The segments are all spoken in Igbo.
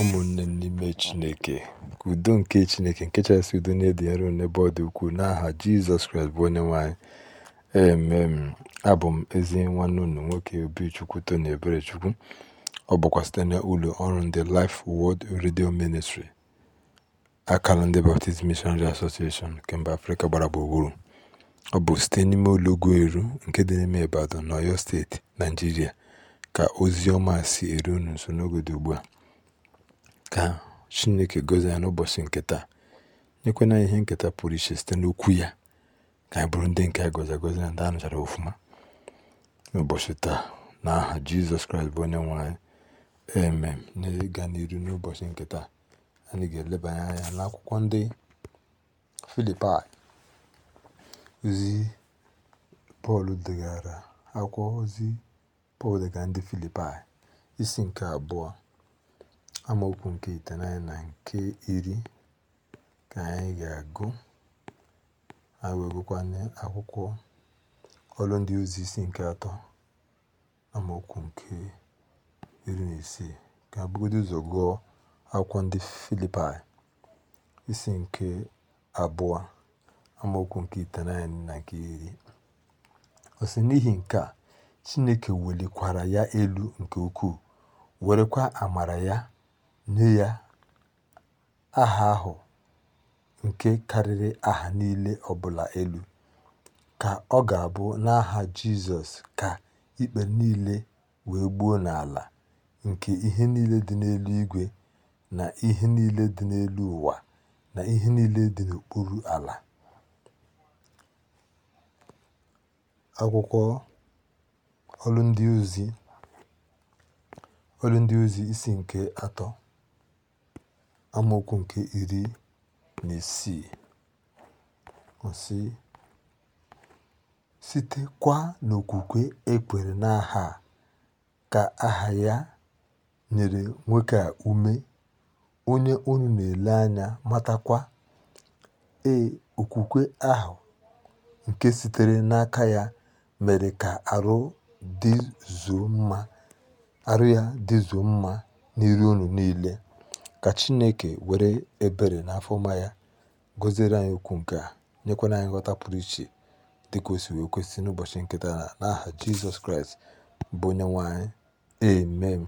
ụmụnne m n'ime Chineke ka udo nke Chineke nke chasị udo niile dị nro n'ebe ọ dị ukwuu n'aha Jizọs Kraịst bụ onye nwe anyị emem abụ m ezi nwanne unu nwoke Obichukwu Tony Eberechukwu ọ bụkwa site na ụlọ ọrụ ndị Life Word Radio Ministry akara ndị Baptist Missionary Association nke afrika Afrịka gbara gburugburu ọ bụ site n'ime ụlọ ugwu eru nke dị n'ime Ibadan na oyo steeti Naijiria ka ozi ọma si eru unu nso n'oge dị ugbu a ka Chineke gọzie ya n'ụbọchị nke taa nyekwana anyị ihe nketa pụrụ iche site n'okwu ya ka anyị bụrụ ndị nke a gọzi agọzi na ndị a nụchara ọfụma n'ụbọchị taa na aha Jizọs Kraịst bụ onye nwe anyị emem n'ịga n'iru n'ụbọchị nke taa anyị ga-elebanye anya n'akwụkwọ ndị Filipaị ozi Pọl degara akwụkwọ ozi Pọl degara ndị Filipaị isi nke abụọ amaokwu nke itenaanya na nke iri ka anyị ga-agụ anyị wegụkwanye akwụkwọ ọrụ ndị ozi isi nke atọ amaokwu nke iri na isii ka bugodo ụzọ gụọ akwụkwọ ndị filipi isi nke abụọ amaokwu nke itenaanya na nke iri ọ si n'ihi nke a chineke welikwara ya elu nke ukwuu werekwa amara ya nye ya aha ahụ nke karịrị aha niile ọbụla elu, ka ọ ga-abụ n'aha Jizọs ka ikpe niile wee gbuo n'ala, nke ihe niile dị n'elu igwe na ihe niile dị n'elu ụwa na ihe niile dị n'okpuru ala. Akwụkwọ ọlụ Ndị Ndị Ozi isi nke atọ amaokwu nke iri na isii site sitekwa n'okwukwe ekwere n'aha a ka aha ya nyere nwoke a ume onye unu na-ele anya matakwa ee okwukwe ahụ nke sitere n'aka ya mere ka arụ mma arụ ya dịzuo mma n'iru unu niile Ka Chineke were ebere na afọma ya gọziere anyị okwu nke a, nyekwana anyị nghọta pụrụ iche dịka o si wee kwesị n'ụbọchị nkịta na n'aha Jizọs Kraịst bụ onye nwanyị Amen.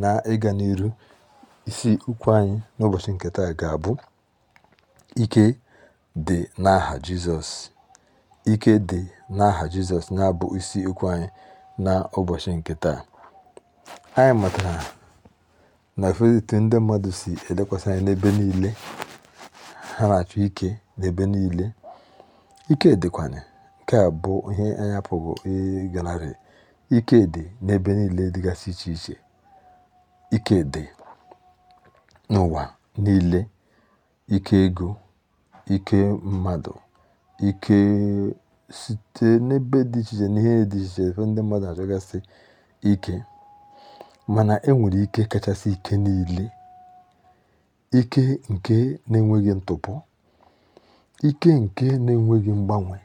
Na ịga n'iru isi okwu anyị n'ụbọchị nkịta ga-abụ ike dị n'aha Jizọs. Ike dị n'aha Jizọs na-abụ isi okwu anyị na ụbọchị Anyị matara nakwezie etu ndị mmadụ si elekwasị anyị n'ebe niile ha na-achọ ike n'ebe niile ike dịkwanye nke a bụ ihe anyị apụghị ịganarị ike dị n'ebe niile dịgasị iche iche ike dị n'ụwa niile ike ego ike mmadụ ike site n'ebe dị iche iche n'ihe dị iche iche ebe ndị mmadụ achọgasị ike mana enwere ike kachasị ike niile ike nke na-enweghị ntụpọ ike nke na-enweghị mgbanwe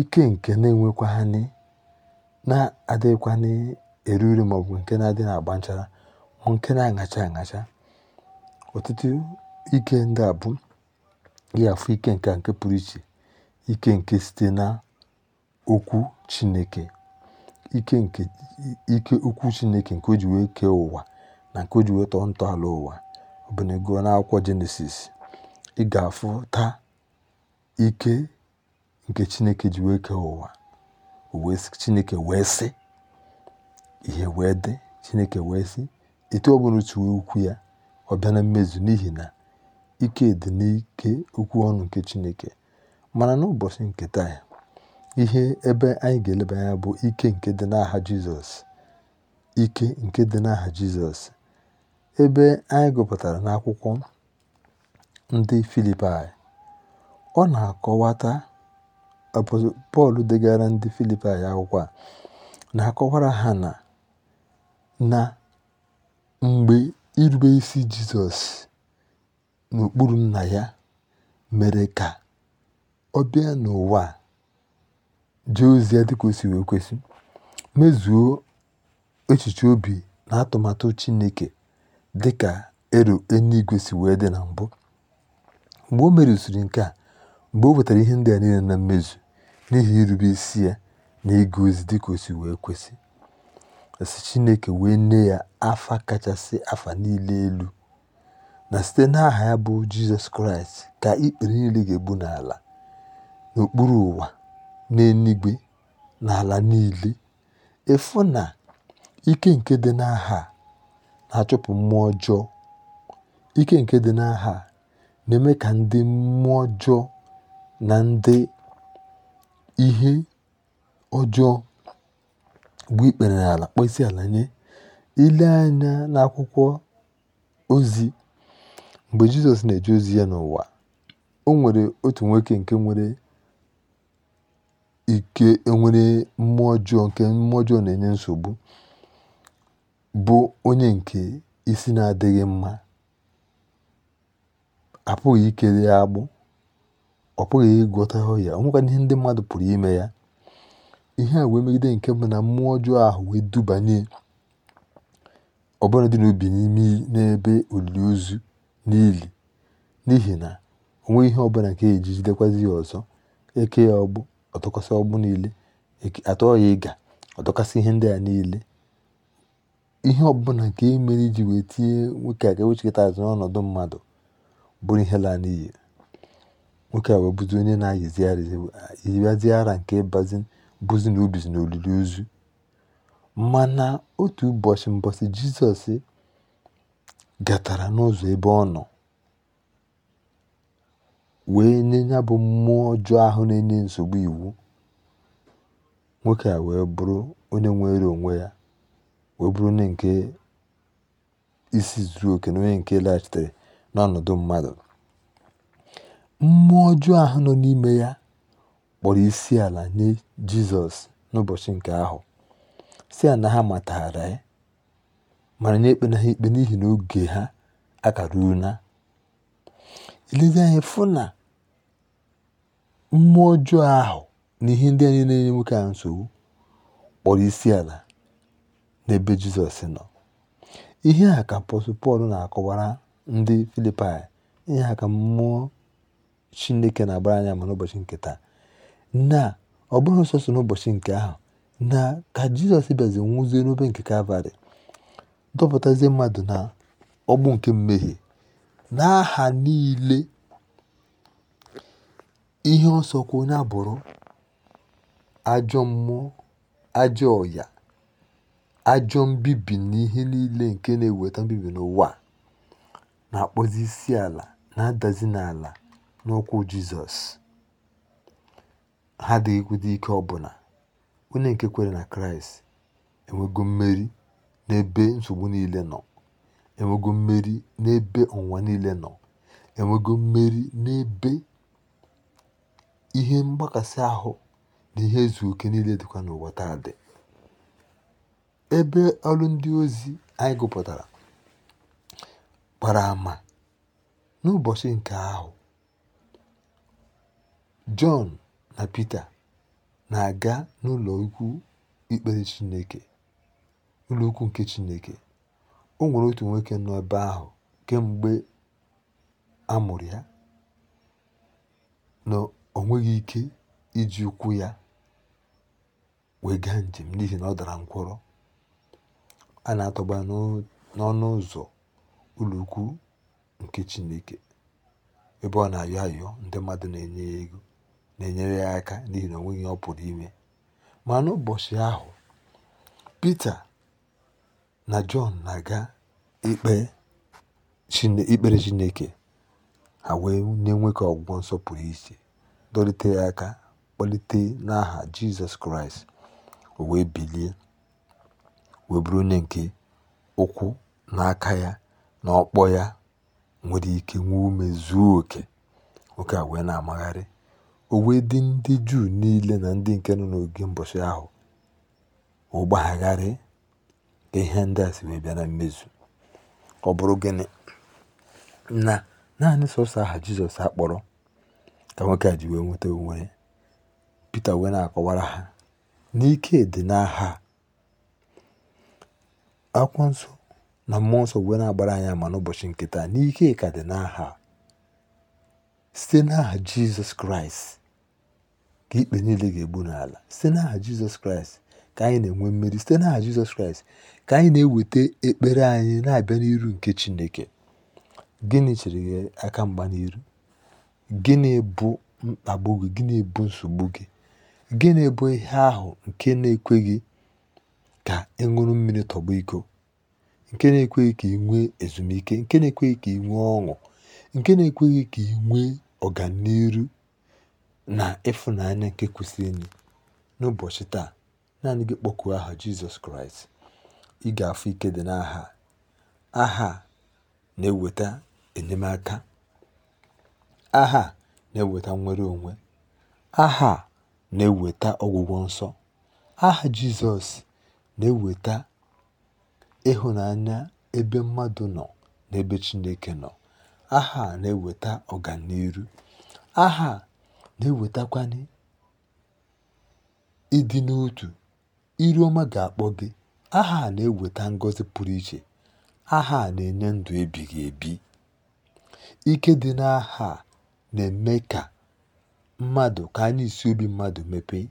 ike nke na-enwekwanị na-adịghịkwanị eru uru maọbụ nke na-adị na-agba nchara ma nke na-aṅacha aṅacha ọtụtụ ike ndị a bụ gị afụ ike nke nke pụrụ iche ike nke site na okwu Chineke ike nke okwu Chineke nke o ji wee kee ụwa na nke o ji wee tọọ ntọala ụwa ọbụnego akwụkwọ Jenesis ị ga-afụta ike nke Chineke ji wee kee ụwa Chineke wee sị ihe wee dị Chineke wee sị etu ọ bụla otu okwu ya ọ bịa na mmezu n'ihi na ike dị n'ike okwu ọnụ nke Chineke mana n'ụbọchị nke taa Ihe ebe anyị ga-eleba anya bụ ike nke dị n'aha Jizọs. Ike nke dị n'aha Jizọs. Ebe anyị gụpụtara n'akwụkwọ ndị Filipaị, ọ na-akọwata Pọl degara ndị Filipaị akwụkwọ a na-akọwara ha na na mgbe irube isi Jizọs n'okpuru Nna ya mere ka ọ bịa n'ụwa jee ozi ya dịka o si wee kwesị mezuo echiche obi na atụmatụ Chineke dịka ero eluigwe si wee dị na mbụ mgbe o merụsiri nke a mgbe o wetara ihe ndị a niile na mmezu n'ihi irube isi ya na ịga ozi dịka o si wee kwesị e si Chineke wee nne ya afa kachasị afa niile elu na site n'aha ya bụ Jizọs Kraịst ka ikpere niile ga-egbu n'ala n'okpuru ụwa n'eluigwe na ala niile efu na ike nke dị n'aha na-achụpụ mmụọ ọjọọ ike nke dị n'aha na-eme ka ndị mmụọ ọjọọ na ndị ihe ọjọọ bụ ikpere n'ala kpọọ ala nye ile anya n'akwụkwọ ozi mgbe Jizọs na-eje ozi ya n'ụwa o nwere otu nwoke nke nwere ike enwere mmụọ ọjọọ nke mmụọ ọjọọ na-enye nsogbu bụ onye nke isi na-adịghị mma apụghị ikele ya agbụ ọ pụghị ịgwọtahụ ya onwekwana ihe ndị mmadụ pụrụ ime ya ihe a wee megide nke mbụ na mmụọ ọjọọ ahụ wee dubanye ọbụla dị n'obi n'ime n'ebe olili ozu n'ili n'ihi na onwe ihe ọbụla nke ejijidekwazi ya ọzọ eke ya ọgbụ ọtụkwasị ọgbụ niile atụọ ịga ọtụkwasị ihe ndị a niile ihe ọbụla nke e mere iji wee tinye nwoke a ga-ewechikọta azụ n'ọnọdụ mmadụ bụrụ ihe laa n'iyi nwoke a wee bụzi onye na-ayịzi ara nke bazi bụzi na ubizi na olili ozu mana otu ụbọchị mbọsị jizọs gatara n'ụzọ ebe ọ nọ wee nye ya bụ mmụọ ọjọọ ahụ na-enye nsogbu iwu nwoke a wee bụrụ onye nwere onwe ya wee bụrụ onye nke isi zuru oke na onye nke laghachitere n'ọnọdụ mmadụ mmụọ ọjọọ ahụ nọ n'ime ya kpọrọ isi ala nye jizọs n'ụbọchị nke ahụ si ya na ha matara ya mara nye ikpe na ha ikpe n'ihi na oge ha akara una elezi fụ na mmụọ ọjọọ ahụ na ihe ndị anyị na-enye nwoke ahụ nsogbu kpọrọ isi ala n'ebe Jizọs nọ ihe a ka apọstụl Pọl na-akọwara ndị Filipaị ihe a ka mmụọ Chineke na-agbara anya ma n'ụbọchị nke taa na ọ bụghị sọsọ n'ụbọchị nke ahụ na ka Jizọs bịazi nwụzie n'obe nke Kalvarị dọpụtazie mmadụ na ọgbụ nke mmehie n'aha niile ihe nsọkwa onye abụrụ ajọ mmụọ ajọ ọya ajọ mbibi na niile nke na-eweta mbibi n'ụwa na-akpọzi isi ala na-adazi n'ala n'ụkwụ Jizọs ha adịghịkwudo ike ọbụla onye nke kwere na Kraịst enwego mmeri n'ebe nsogbu niile nọ enwego mmeri n'ebe ụwa niile nọ enwego mmeri n'ebe ihe mgbakasị ahụ na ihe ezu oke niile dịkwa n'ụwa taa dị ebe ọrụ ndị ozi anyị gụpụtara gbara ama n'ụbọchị nke ahụ Jọn na Pita na-aga n'ụlọ ukwu ikpere Chineke ụlọ nke Chineke o nwere otu nwoke nọ ahụ kemgbe a mụrụ ya na o nweghị ike iji ụkwụ ya wee gaa njem n'ihi na ọ dara ǹgwụrọ a na atọgba n'ọnụ ụzọ ụlọ̀ ukwu nke Chineke ebe ọ na-ayọ ayọ ndị mmadụ na-enye ya ego na-enyere ya aka n'ihi na o nweghi ọ pụrụ ime ma n'ụbọchị ahụ Pita na Jọn na-aga ikpe ikpere Chineke ha wee nye nwoke ọgwụgwọ nsọ pụrụ iche dọlite ya aka kpọlite n'aha Jizọs Kraịst o wee bilie wee bụrụ onye nke ụkwụ n'aka ya na ọkpọ ya nwere ike nwee ume zuo oke oke a wee na-amagharị o wee dị ndị Juu niile na ndị nke nọ n'oge mbọchị ahụ ụgbagharị ka ihe ndị a si wee bịa na mmezu ọ bụrụ gịnị na naanị sọsọ aha jizọs akpọrọ ka nwoke a ji wee nweta onwe ya pita wee na-akọwara ha n'ike dị n'aha akwụkwọ nsọ na mmụọ nsọ wee na-agbara anyị ama n'ụbọchị nkịta n'ike ka dị n'aha site n'aha jizọs kraịst ka ikpe niile ga-egbu n'ala site n'aha jizọs kraịst ka anyị na-enwe mmeri site n'aha Jizọs Kraịst ka anyị na-eweta ekpere anyị na-abịa n'iru nke Chineke gịnị chere gị aka mgba n'iru gịnị bụ mkpagbu gị gịnị bụ nsogbu gị gịnị bụ ihe ahụ nke na-ekweghị ka ịṅụrụ mmiri tọgbọ iko nke na-ekweghị ka ị nwee ezumike nke na-ekweghị ka ị nwee ọṅụ nke na-ekweghị ka ị nwee ọganiru na ịfụnanya nke kwesịrị enyi n'ụbọchị taa naanị gị kpọkuo aha jizọs kraịst ị ga-afụ ike dị n'aha aha na-eweta enyemaka aha na-eweta nwere onwe aha na-eweta ọgwụgwọ nsọ aha jizọs na-eweta ịhụnanya ebe mmadụ nọ na ebe chineke nọ aha na-eweta ọganiru aha na-ewetakwanị ịdị n'otu Iri ọma ga-akpọ gị aha a na-eweta ngọzi pụrụ iche aha a na-enye ndụ ebighị ebi ike dị n'aha a na-eme ka mmadụ ka anya isi obi mmadụ mepee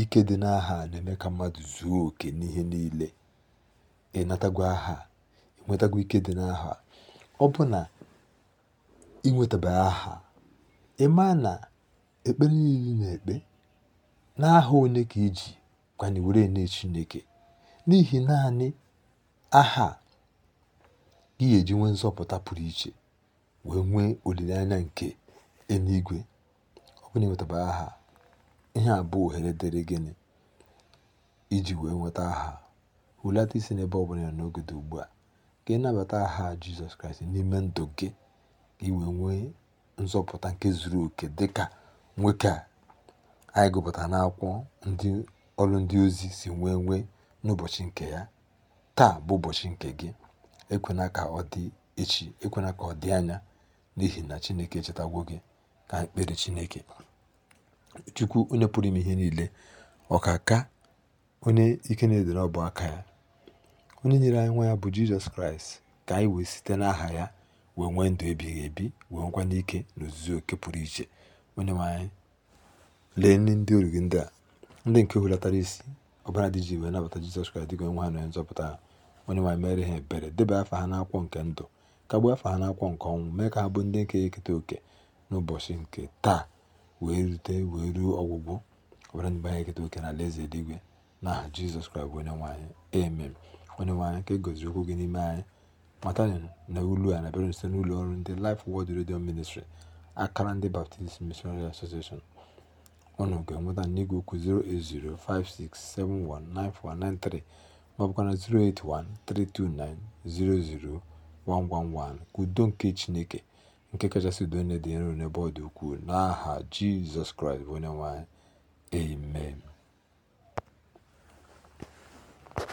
ike dị n'aha na-eme ka mmadụ zuo oke n'ihe niile ịnatagwa aha ike dị n'aha ọ bụ na inwetaba aha ị maa na ekpere niile na-ekpe n'aha onye ka iji gwanị were ene Chineke n'ihi naanị aha gị ga-eji nwee nzọpụta pụrụ iche wee nwee olileanya nke eluigwe ọ bụrụ na aha ihe a bụ ohere dịrị gịnị iji wee nweta aha hulata isi n'ebe ọ bụla ya n'oge dị ugbu a ka ị nabata aha Jizọs Kraịst n'ime ndụ gị ka ị wee nwee nzọpụta nke zuru oke dịka nwoke a anyị gụpụtara n'akwụkwọ ndị ọrụ ndị ozi si nwee nwee n'ụbọchị nke ya taa bụ ụbọchị nke gị ekwena ka ọ dị echi ekwena ka ọ dị anya n'ihi na Chineke echetagwo gị ka mkpere Chineke Chukwu onye pụrụ ime ihe niile ọ ka ka onye ike na-edere ọbụ aka ya onye nyere anyị nwa ya bụ Jizọs Kraịst ka anyị wee site n'aha ya wee nwee ndụ ebighị ebi wee nwekwa n'ike na ozuzo oke pụrụ iche onye nwe anyị lee ndị oru ndị a Ndị nke hulatara isi ọbara dị iji wee nabata Jizọs Kraịst dịka onwe ha na nzọpụta ha onye nwanyị mere ha ebere debe afa ha n'akwọ nke ndụ kagbuo afa ha n'akwọ nke ọnwụ mee ka ha bụ ndị nke eketa oke n'ụbọchị nke taa wee rute wee ruo ọgwụgwụ ọbara ndị anyị eketa oke na alaeze eluigwe n'aha Jizọs Kraịst bụ onye nwanyị emem onye nwanyị ka e goziri okwu gị n'ime anyị matani na ulu a na-abịara site n'ụlọ ọrụ ndị Life Word redio Ministry akara ndị Baptist Missionary Association ọnụ ga-enweta m n'igwe okwu 08056719493 ma ọ 08132900111. udo nke Chineke nke kachasị udo niile dị nro n'ebe ọ dị n'aha Jizọs Kraịst bụ onye anyị. Amen.